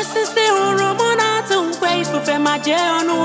osisi hụrụ mụ na-atụ nkwe ifufe ma jee ọnụ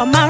on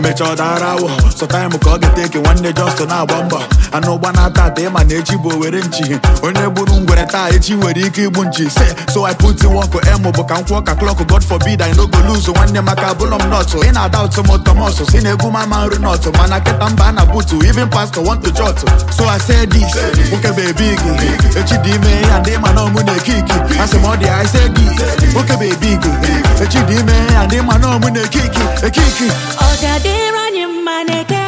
emecha ọ dara awụ sọtaịmụ ka ọ ga-eteke nwanne Justin na-agba mbọ anụ ụgba na-ata ata ịma na echi bụ owere nchi onye gburu ngwere taa echi nwere ike igbu nchi se so I put in work emu bụ ka m kwụọ ka klọk God forbid I no go lose nwanne maka abụlọ m nọtụ ị na-ada ụtụ m tọmọsụ si na egwu mama nri nọtụ mana kịta mba na butu even pastor want to jot so I say this nwoke bebi gị echi dị ime ya ndị ma na ọmụ na-eke iki asị I say this nwoke bebi gị echi dị ime ya ndị ma na ọmụ na-eke iki eke iki ịranye mma na-eke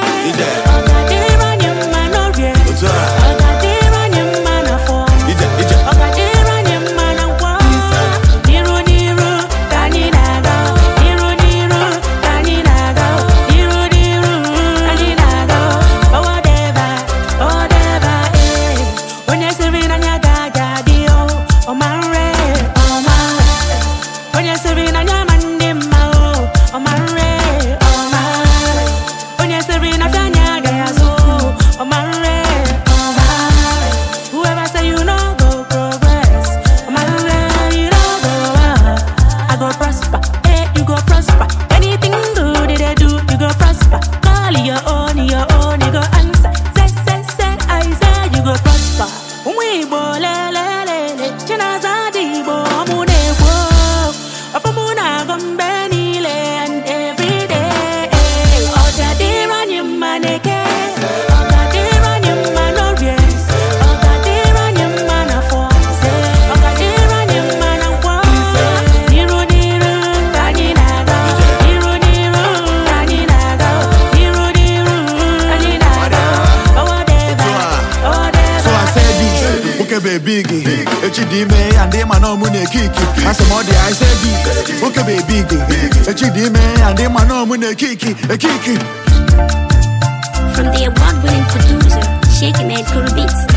own, your own, you go answer. Say, say, say, you okebe big echi dị ime ya ndị ma na ọmụ na-ekiki asị m ọ dị ise bi bụ big echi dị ime ya ndị ma na ọmụ na eke ekiki From the award-winning producer, Sheikh Ahmed Kuru Beats.